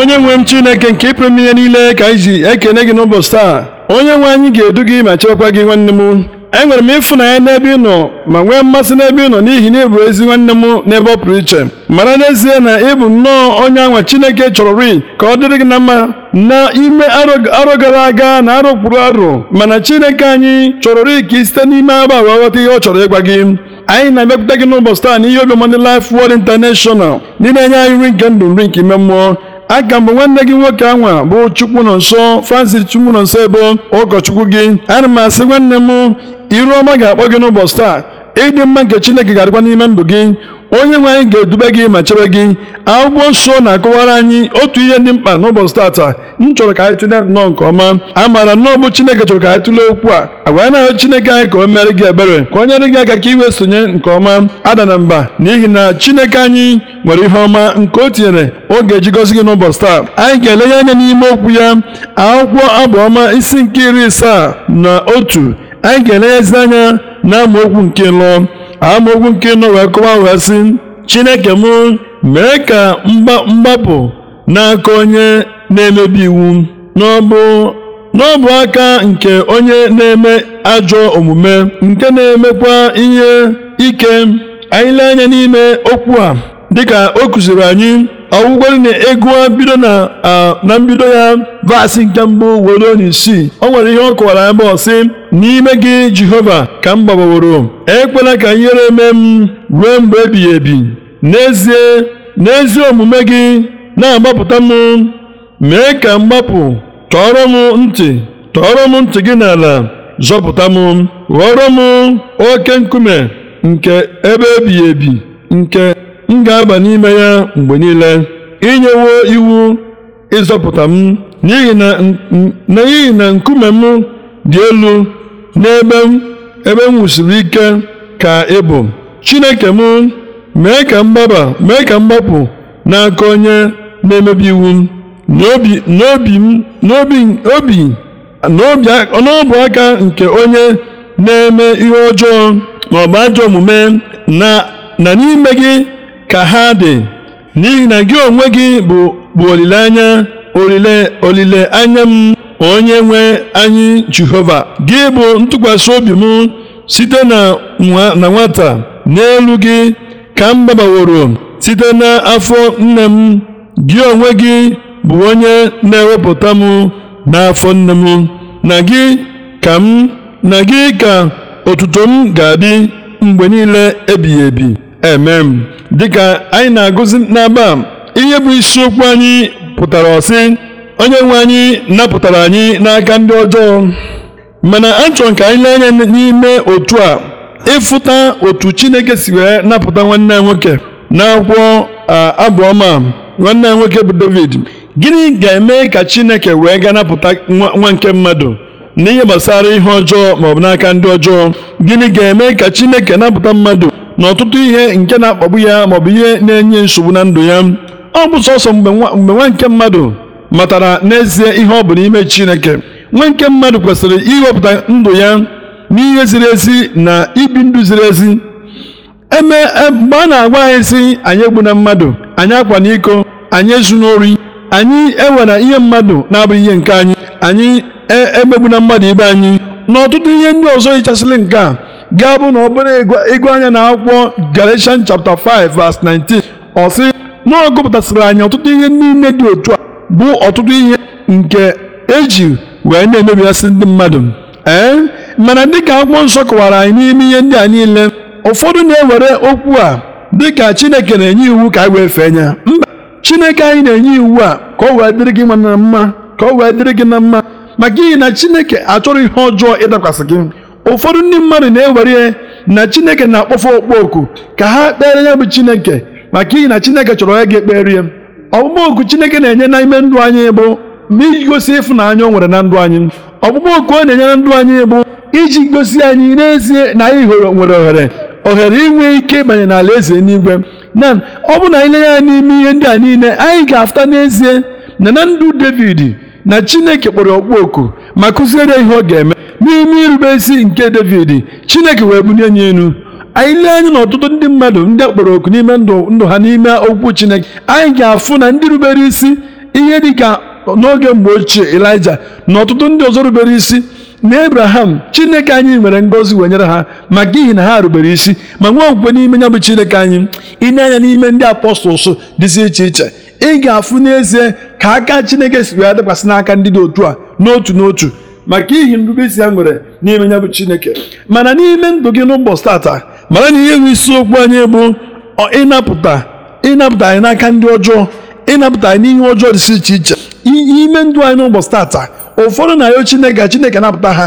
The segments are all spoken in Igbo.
onye nwe m chineke nke ịpụrụ ihe niile ka anyị ji ekene gị n'ụbọchị taa onye nwe anyị ga-edu gị ma chekwa gị nwanne m enwere m ya n'ebe ị nọ ma nwee mmasị n'ebe ị nọ n'ihi na ịbụ ezi nwanne m n'ebe ọ pụrụ iche mara n'ezie na ị bụ nnọọ onye anwa chineke chọrọ ri ka ọ dịrị gị na mma ime arọ gara aga na arọ kpụrụ arụ mana chineke anyị chọrọ ri ka ị site n'ime agba wee ghọta ihe ọ chọrọ ịgwa gị anyị na emepụta gị n'ụbọchị taa na ihe obiọma ndị Word International ndị na-enye anyị nri nke ndụ nri nke ime mmụọ aga mbụ nwanne gị nwoke anwa bụ chukwu nọ nso francis chukwu nọ nso ebe ụkọchukwu gị ana m asị nwanne m iru ọma ga-akpọ gị n'ụbọchị taa ịdị mma nke chineke ga-adịkwa n'ime ndụ gị onye nwe anyị ga-edube gị ma chebe gị akwụkwọ nsọ na-akọwara anyị otu ihe dị mkpa n'ụbọchị tata m chọrọ ka anyị tụlee nnọọ nke ọma a maara nnọọ bụ chineke chọrọ ka anyị tụlee okwu a agwa na chineke anyị ka o mere gị ebere ka o nyere gị aka ka iwe sonye nke ọma ada na mba n'ihi na chineke anyị nwere ihe ọma nke o tinyere oge eji gị n'ụbọchị taa anyị ga-elenye anya n'ime okwu ya akwụkwọ abụọma isi nke iri isaa na otu anyị ga-elenyezi anya na okwu nke lụọ amaokwu nke nọ wee kọwa sị chineke m mee ka mgbapụ n'aka onye na-emebi iwu n'ọbụ n'ọbụ aka nke onye na-eme ajọ omume nke na-emekwa ihe ike anyị lee anya n'ime okwu a dịka o kụziri anyị ọgwụgwọ na a bido na mbido ya vaasị nke mbụ were onye isii o nwere ihe ọ kọwara abụọ sị n'ime gị jehova ka m gbabaworo ekwela ka ihere mee m ruo mgbe ebighị ebi n'ezie n'ezi omume gị na-agbapụta m mee ka m gbapụ tọọrọ m ntị tọọrọ ntị gị n'ala zọpụta m ghọrọ m oke nkume nke ebe ebighị ebi nke m ga-aba n'ime ya mgbe niile inyewo iwu ịzọpụta m n'ihi na nkume m dị elu n'ebe m ebe m wusiri ike ka ị bụ Chineke m mee ka mgbaba mee ka mgbapụ n'aka onye na-emebi iwu m aka nke onye na-eme ihe ọjọọ ma ọ bụ ajọ omume na n'ime gị ka ha dị n'ihi na gị onwe gị bụ olileanya olile olileanya m onye nwe anyị Jehova gị bụ ntụkwasị obi m site na nwata n'elu gị ka m gbabaworo site n'afọ nne m gị onwe gị bụ onye na-ewepụta m n'afọ nne m na gị ka m na gị ka otuto m ga-adị mgbe niile ebighị ebi eme m dịka anyị na-agụzi n'aba ihe bụ isiokwu anyị pụtara ọsị onye nwe anyị napụtara anyị n'aka ndị ọjọọ mana a m ka anyị lee anya n'ime otu a ịfụta otu chineke si wee napụta nwanne ya nwoke n'akwụkwọ abụọma nwanne nwoke bụ david gịnị ga-eme ka chineke wee ga napụta nwa nke mmadụ n'ihe gbasara ihe ọjọọ maọbụ n'aka ndị ọjọọ gịnị ga-eme ka chineke napụta mmadụ na ọtụtụ ihe nke na-akpagbu ya maọbụ ihe na-enye nsogbu na ndụ ya ọ bụ sọsọ mgbe nwa nke mmadụ matara n'ezie ihe ọ bụ n'ime Chineke nwa nke mmadụ kwesịrị iwepụta ndụ ya n'ihe ziri ezi na ibi ndụ ziri ezi eme e, mgbe a na-agwa anyị si anyị egbuna mmadụ anyị akwa n'iko anyị ezu n'ori anyị ewere ihe mmadụ na-abụghị ihe nke anyị anyị e, emegbuna mmadụ ibe anyị na ọtụtụ ihe ndị ọzọ yichasịrị nke a gaa bụ na bụrụ ịgụ anya na akwụkwọ Galatians chapter 5 verse 19 ọ sị na ọ gụpụtasịrị anyị ọtụtụ ihe niile dị otu a bụ ọtụtụ ihe nke eji wee na emebiasị ndị mmadụ ee mana dịka akwụkwọ nsọ kọwara anyị n'ime ihe ndị a niile ụfọdụ na-ewere okwu a dịka Chineke na-enye iwu ka anyị wee fee ya mba Chineke anyị na-enye iwu a ka ọ wee dịrị gị nwa na mma ka ọ wee dịrị gị na mma maka ihi na Chineke achọrọ ihe ọjọọ ịdakwasị gị ụfọdụ ndị mmadụ na-ewere na chineke na-akpọfe okpoku ka ha kpere ya bụ chineke maka iyi na chineke chọrọ onye ga-ekpere ya ọkpụkpọ oku chineke na-enye n'ime ndụ anyị bụ ma iji gosi ịfụnanya o nwere na ndụ anyị ọkpụkpọ oku ọ na-enye na ndụ anyị bụ iji gosi anyị n'ezie na anyị nwere ohere ohere inwe ike ịbanye n'ala eze n'igwe na ọ bụ na anyị lenye ya n'ime ihe ndị a niile anyị ga-afụta n'ezie na na ndụ david na chineke kpọrọ okpu oku ma kụziere ihe ọ ga-eme n'ime irube isi nke David Chineke wee bunye anyị enu anyị lee anya na ọtụtụ ndị mmadụ ndị kpọrọ oku n'ime ndụ ndụ ha n'ime okwu Chineke anyị ga-afụ na ndị rubere isi ihe dị ka n'oge mgbe ochie Elija na ọtụtụ ndị ọzọ rubere isi na Abraham Chineke anyị nwere ngọzi wee nyere ha maka ihi na ha rubere isi ma nwee okwukwe n'ime ya bụ Chineke anyị ịnye anya n'ime ndị apọstọls dịzi iche iche ị ga-afụ n'ezie ka aka Chineke si wee dịkwasị n'aka ndị dị otu a n'otu n'otu maka ihi nrubeisi ya nwere n'ime ya bụ chineke mana n'ime ndụ gị n'ụbọchị tata mara na ihe bụ isiokwu anyị bụ ịnapụta ịnapụta anyị n'aka ndị ọjọọ ịnapụta anyị n'ihe ọjọọ dịsi iche iche ime ndụ anyị n'ụbọchị tata ụfọdụ na-ayọ chineke chineke napụta ha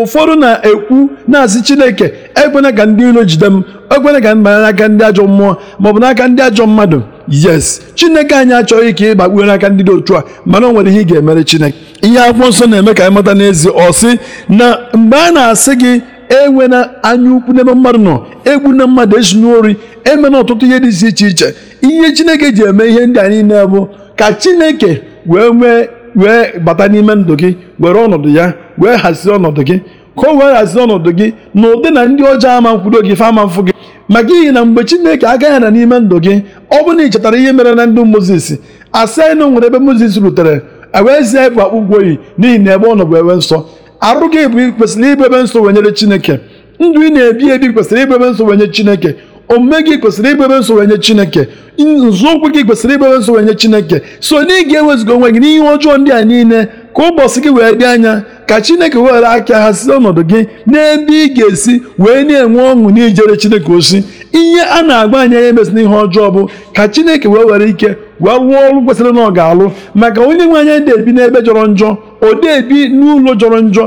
ụfọdụ na-ekwu na-asị chineke ekwena ka ndị iro jide m ekwena ka m banye n'aka ndị ajọ mmụọ maọbụ n'aka ndị ajọ mmadụ yes chineke anyị achọghị ka ị gbakpuo n'aka ndị dị otu a mana o nwere ihe ị ga-emere chineke ihe akwụkwọ nsọ na-eme ka anyị mata n'ezi ọ sị na mgbe a na-asị gị enwe na anya ukwu n'ebe mmadụ nọ egbu na mmadụ esi ori emena ọtụtụ ihe dị iche iche ihe chineke ji eme ihe ndị a niile bụ ka chineke wee wee wee bata n'ime ndụ gị were ọnọdụ ya wee hazie ọnọdụ gị ka o wee hazie ọnọdụ gị na ụdị na ndị ọjọọ ama nkwudo gị fe ama mfụ gị maka ihi na mgbe chineke agaghị na n'ime ndụ gị ọ bụrụ na ị chetara ihe mere na moses asa asenu nwere ebe moses rutere ewee zie ịbụ akpụkpọ oyi n'ihi na ebe ọ nọ bụ ewe nsọ arụ gị bụ kwesịrị ịbụ ebe nsọ wenyere Chineke ndụ ị na-ebi ebi kwesịrị ịbụ ebe nsọ wenye Chineke omume gị kwesịrị ịbụ ebe nsọ wenye Chineke nzọụkwụ gị kwesịrị ịbụ ebe nsọ wenye Chineke so na ị ga-ewezuga onwe gị n'ihe ọjọọ ndị a niile ka ụbọchị gị wee dị anya ka Chineke were aka ha si ọnọdụ gị n'ebe ị ga-esi wee na-enwe ọṅụ ijere Chineke osi ihe a na-agba anya anya emesina ihe ọjọọ bụ ka chineke wee were ike wee rụọ ọrụ kwesịrị na ọ ga-alụ maka onye nwe anya na-ebi n'ebe jọrọ njọ ode ebi n'ụlọ jọrọ njọ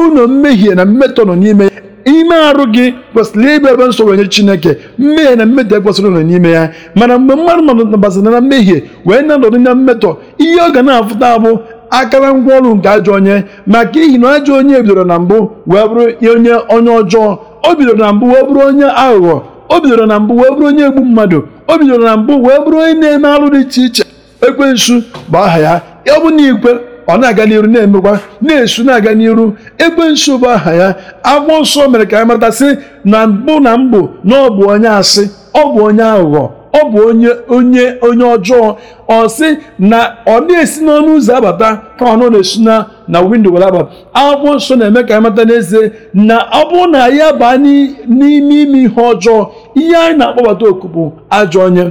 ụlọ mmehie na mmetọ nọ n'ime ime arụ gị kwesịrị ịbụ ebe nsogbu nye chineke mmehie na mmetọ ekwesịrị nọ n'ime ya mana mgbe mmadụ nọbasịrị na mmehie wee na-anọdụ na mmetọ ihe ọ ga na-afụta bụ akara ngwa ọrụ nke ajọ onye maka ihi na ajọ onye bidoro na mbụ wee bụrụ onye onye ọjọọ o bidoro na mbụ wee bụrụ onye aghụghọ o bidoro na mbụ wee bụrụ onye egbu mmadụ o bidoro na mbụ wee bụrụ onye na-eme alụ dị iche iche ekwensu bụ aha ya ọbụna bụ igwe ọ na-aga n'iru na-emekwa na-esu na-aga n'iru ekwensu bụ aha ya agbụ nsọ mere ka anyị sị na mbụ na mbụ na ọ bụ onye asị ọ bụ onye aghụghọ ọ bụ onye onye onye ọjọọ ọ sị na ọ na-esi n'ọnụ ụzọ abata ka ọ na-esu na na windo were aba akwụkwọ nsọ na-eme ka amata n'ezie na ọ bụrụ na ya baa n'ime ime ihe ọjọọ ihe anyị na-akpọbata oku bụ ajọ onye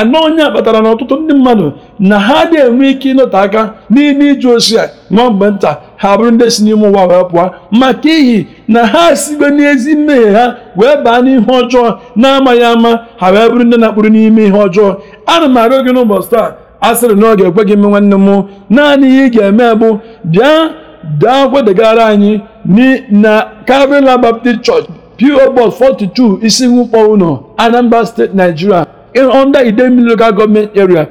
anọ onye kpatara na ọtụtụ ndị mmadụ na ha adịghị enwe ike ịnọte aka n'ime ije ozi a nwa mgbe nta ha bụrụ ndị si n'ime ụwa wee pụọ maka ihi na ha sigbe n'ezi mmehie ha wee baa n'ihe ọjọọ na-amaghị ama ha wee bụrụ ndị na-akpụrụ n'ime ihe ọjọọ ana m arịọ gị n'ụbọchị taa a sịrị ekwe gị ime nwanne m naanị ihe ị ga-eme bụ bịa daa kwedegara anyị na caribbean Baptist Church PO Box 42 Isiukpo Uno Anambra State Nigeria under Idemili Local Government Area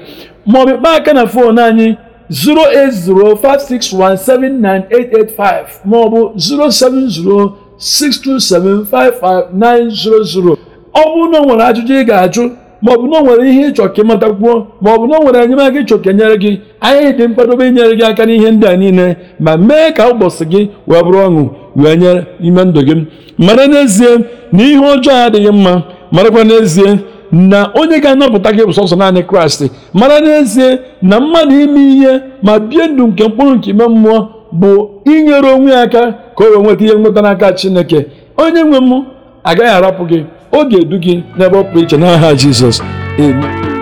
maọbụ kpaa aka na fon anyị 08056179885 maọbụ 07062755900 ọ bụrụ na ọ nwere ajụjụ ị ga-ajụ ma ọ bụ na o nwere ihe ịchọ ka ịmatakwuo ma ọ bụ na o nwere enyemaka ịchọ ka enyere gị anyị dị mkpadobe inyere gị aka n'ihe ndị a niile ma mee ka ụbọchị gị wee bụrụ ọṅụ wee nyere ime ndụ gị mara n'ezie na ihe ọjọọ adịghị mma marakwa n'ezie na onye ga-anapụta gị bụ sọsọ naanị kraịst mara n'ezie na mmadụ ime ihe ma bie ndụ nke mkpụrụ nke ime mmụọ bụ inyere onwe ya aka ka o wee nweta ihe nweta n'aka chineke onye nwe m agaghị arapụ gị ọ ga-edu gị n'ebe ọ pụrụ iche n'aha Jizọs amen